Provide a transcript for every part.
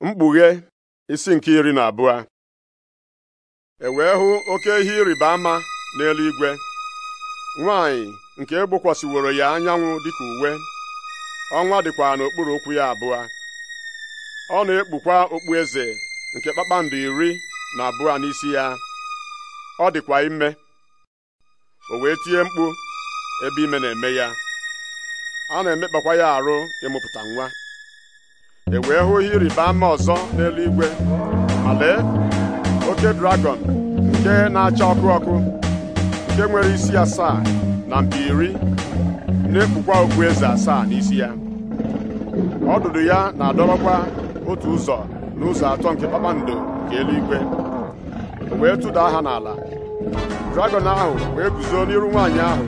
mkpughe isi nke iri na abụọ e wee hụ oke ihe ịrịba ama n'eluigwe nwanyị nke egbokwasịworo ya anyanwụ dịka uwe ọnwa dịkwa n'okpuru ụkwụ ya abụọ ọ na-ekpukwa okpu eze nke kpakpando iri na abụọ n'isi ya ọ dịkwa ime o wee tie mkpu ebe ime na-eme ya a na-emekpakwa ya arụ ịmụpụta nwa e wee hụ ihe ịrịba ama ọzọ n'eluigwe ma lee oke dragọn nke na-acha ọkụ ọkụ nke nwere isi asaa na mpi iri na-ekpukwa okpu eze asaa n'isi ya ọdụdụ ya na-adọrọkwa otu ụzọ n'ụzọ atọ nke kpakpando nke eluigwe wee tụda aha n'ala dragọn ahụ wee guzo n'iru nwaanyị ahụ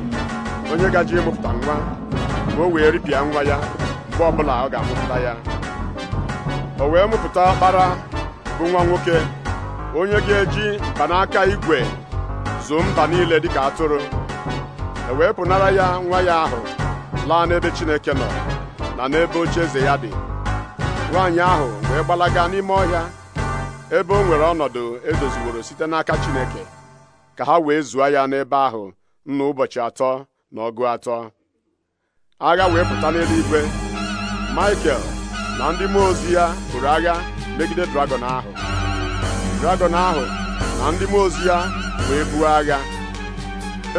onye gaji ịmụpụta nwa ma o wee ripịa nwa ya mgbe ọbụla ọ ga-amụpụta ya o wee mụpụta ọkpara bụ nwa nwoke onye ga-eji mkpanaka igwe zoo mba niile dịka atụrụ e wee pụnara ya nwa ya ahụ laa n'ebe Chineke nọ na n'ebe oche eze ya dị nwaanyị ahụ wee gbalaga n'ime ọhịa ebe o nwere ọnọdụ edoziworo site n'aka Chineke ka ha wee zụọ ya n'ebe ahụ nna ụbọchị atọ na ọgụ atọ agha wee pụta n'eluigwe Michael na ndị mmụọ ozi ya bụrụ agha megide dragọn ahụ dragọn ahụ na ndị mmụọ ozi ya wee buo agha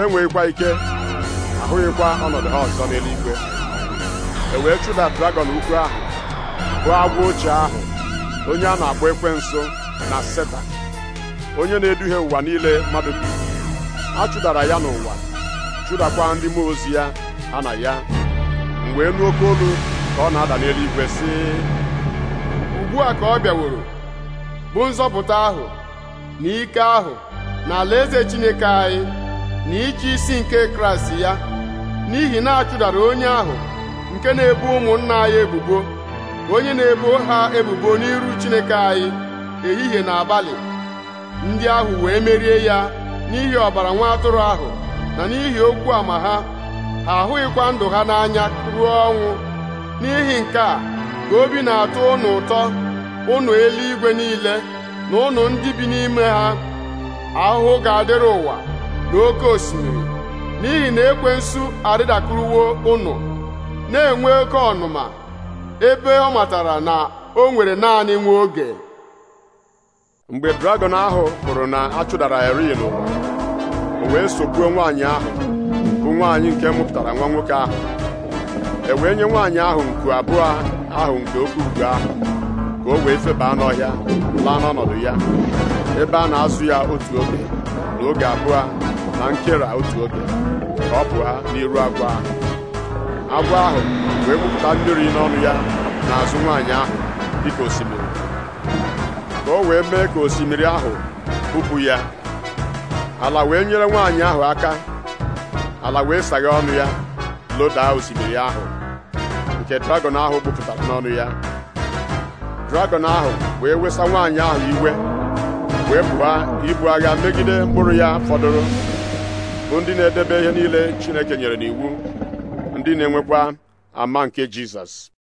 enweghịkwa ike ahụghịkwa ọnọdụ ha ọzọ n'eluigwe e wee chụda dragọn ukwu ahụ bụ agwa ochie ahụ onye a na-akpọ nso na seta onye na-eduhie ụwa niile mmadụ bi a chụdara ya n'ụwa chụdakwa ndị mmụọ ozi ya ha na ya mgbe nụ oke olu ka ọ na-ada n'eluigwe sị ugbu a ka ọ bịaworo bụ nzọpụta ahụ na ike ahụ na eze Chineke anyị na iji isi nke Kraịst ya n'ihi na achụdara onye ahụ nke na-ebu ụmụnna anyị ebubo onye na-ebo ha ebubo n'iru Chineke anyị ehihie na abalị ndị ahụ wee merie ya n'ihi ọbara nwa atụrụ ahụ na n'ihi okwu ama ha ha ahụghịkwa ndụ ha n'anya ruo ọnwụ n'ihi nke a ka obi na atụ ụnụ ụtọ ụnụ eluigwe niile na ụnụ ndị bi n'ime ha ahụhụ ga-adịrị ụwa na oke osimiri n'ihi na ekwensu arịdakwuruwo ụnụ na-enwe oke ọnụma ebe ọ matara na o nwere naanị nwa oge mgbe dragọn ahụ hụrụ na a chụdara eri n'ụwa o wee sogbuo nwaanyị ahụ bụ nwaanyị nke mụpụtara nwa nwoke ahụ e wee nye nwaanyị ahụ nku abụọ ahụ nke oke ugo ahụ ka o wee febaa n'ọhịa laa n'ọnọdụ ya ebe a na-azụ ya otu oge na oge abụọ na nkera otu oge ka ọ pụọ n'iru agwọ ahụ agwọ ahụ wee gbupụta mmiri n'ọnụ ya n'azụ nwaanyị ahụ dịka osimiri ka o wee mee ka osimiri ahụ bupụ ya ala wee nyere nwaanyị ahụ aka ala wee sagha ọnụ ya lodaa osimiri ahụ nke dragọn ahụ gbupụtara n'ọnụ ya dragọn ahụ wee wesa nwaanyị ahụ iwe wee pụa ibu agha megide mkpụrụ ya fọdụrụ bụ ndị na-edebe ihe niile Chineke nyere n'iwu ndị na-enwekwa ama nke Jizọs